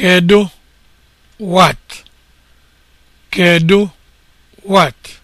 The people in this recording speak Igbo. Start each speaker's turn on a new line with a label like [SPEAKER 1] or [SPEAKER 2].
[SPEAKER 1] Kedu what? Kedu what?